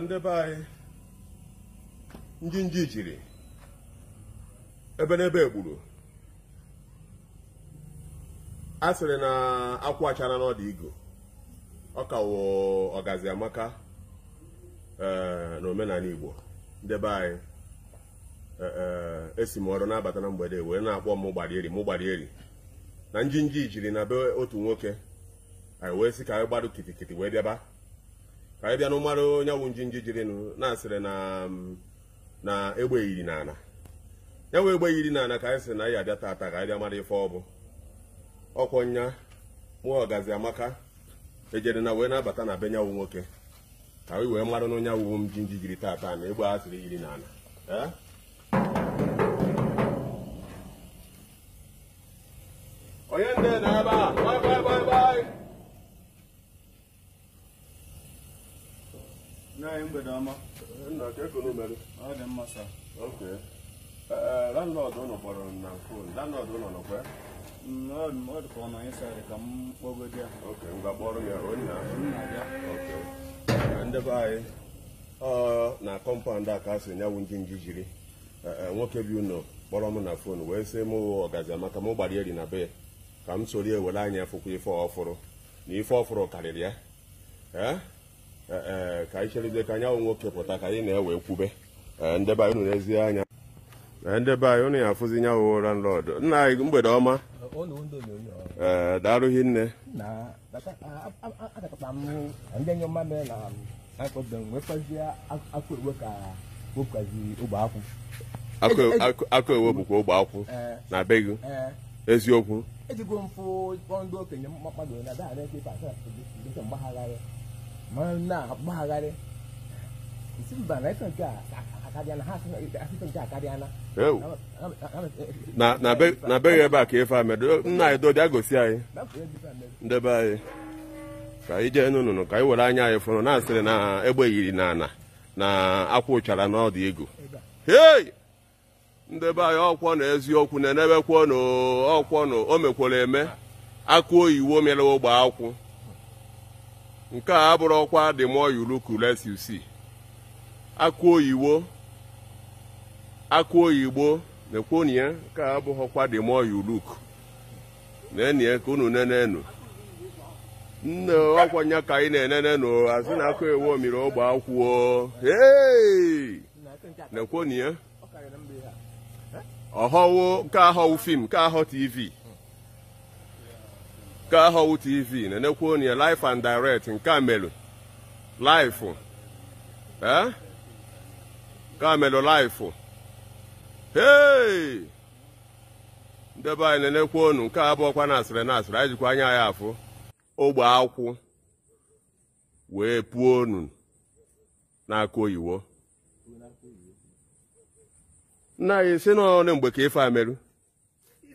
ndị be anyị ndị nji jiri ebe n'ebe egburu a sịrị na akwụ achara n'ọdụ igo ọkawụ kawo ọgazi amaka e, na omenala igbo ndị be anyị e, e, esi m ọrụ na-abata na mgbede wee na-akpọ m gbarieri m gbarieri na njinji jiri na be otu nwoke anyị wee sị ka anyị gbadụ kitikiti wee bịaba ka anyị bịa na ụmara onye wụ njinji jirinụ na-asịrị na mm, egbe yiri n'ala ya nwe egbe yiri n'ala ka anyị sị na anyị abịa tata ka anyị bịa mara ife ọ bụ ọkwọ nya mụọ ọgazi amaka ejere na wee na-abata na be nyanwụ nwoke ka anyị wee mara na onye awụwo m jiri tata na egbe a sịrị yiri n'ala mgbede ọma nna ọ dị mma ụlọ kpọrọ na fon ụlọ mm, ọ dị ka ọ na ka m ya ok kpọrọ ya onye na kọmpaụnd a ka a sị nyanwụ jiri nwoke bi unu kpọrọ m na fon wee sị m ọgazi amaka m gbara eri na be ya ka m soro ewere anya fụkwa ife ọfụrụ na ife ọfụrụ karịrị ya Eh, eh, ka anyị cherizie ka anyanwụ nwoke pụta ka anyị na-ewe nkwube. Eh, ndebe anyị unu ezi anya ndebe anyị unu ya afụzi nyanwụ ụra nlọdụ nna anyị mgbede ọma ee darụghị nne e, e, e, akụ ewe bụkwa ogbe akwụ na be gị eziokwu na-agbagharị ebe a ka ife amedo nna anyị dodịa gosi anyị ndebe anyị ka ije jee n'ụnụnụ ka anyị were anya anyị fụrụ na-asịrị na egbe yiri na ana na akwa ụchara n'ọdụ ego hei ndebe anyị ọkwọ na eziokwu na-enebekwo n'ọkwọ na o mekwere eme aka oyiwo mere ogbe akwụ nke a abụrụ ọkwa the more you look less you see akụ oyibo akụ oyibo na-ekwonye nke a abụghị ọkwa the more you look na-enye ka unu nenenu nne ọkwanye ka anyị na-enenenu azụ na akụ ewu omiri ogbe akwụo na-ekwonye ọhọwo nke ahọwụ fim nke ahọ tv nke ahọwụ tv na-enekwa onye life and direct nke a melụ nke a melụ life ndebe anyị na-enekwa onu nke abụọkwa na asịrị na asịrị anyị jikwa anya ya afụ ogbe akwụ wee puo onu n'aka oyiwo nna anyị si n'ọnụ mgbe ka ife amerụ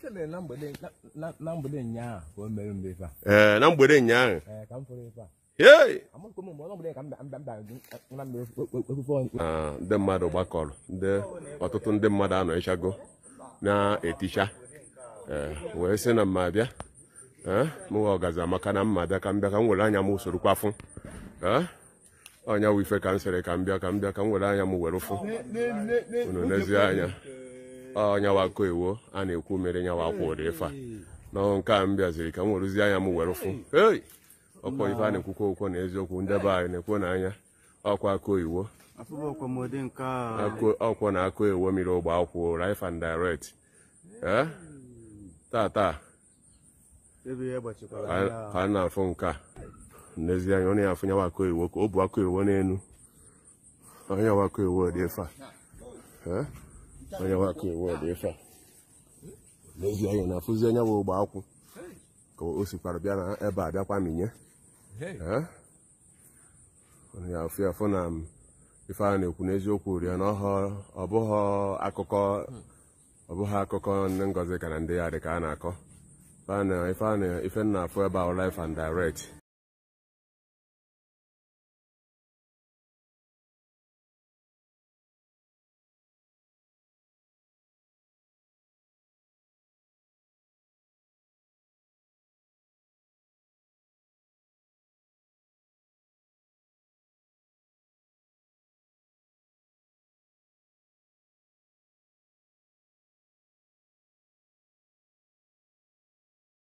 na mgbede ụnyaahụ ka o mere mbe ee na mgbede ụnyaahụ eh, eh, e, e, ndị mmadụ gbakọrọ ndị ọtụtụ ndị mmadụ anọchago na-eticha eh, wee sị na mma bịa mụwa ọgazi amaka na mma bịa ka m bịa ka m were anya m usoro kwafụ ọnya wife ka m sịrị ka m bịa ka m bịa ka m were anya m were ụfụ unu n'ezie anya ọnyawa koewo a na-ekwu mere nyawa akwụ ụdị ife a n'ọnụ nke a m bịaziri ka m werụzie anya m were fụ ei ọkwa ife a na-ekwukwa okwo na eziokwu ndebe anyị na-ekwu na anya ọkwa koiwo ọkwọ na akọ ewo mere ogbe akwụ rif and direct tata ka a na-afụ nke a n'ezie ọ na-afụ nyawa akụ iwo ka o bu akọ iwo n'elu onye wakụ iwo dị ife onye nwaka iwu ife n'ezi anya na-afụzi onye nwe ụgbọ akwụ ka o sikwara bịa na ebe a bịakwa minye ya afụ afụ na ife a na-ekwu n'eziokwu rie na ọ bụghị akụkọ ọ bụghị akụkọ ndị ngozi ka na ndị ya dị ka a na-akọ ife a na-afụ ebe a life and direct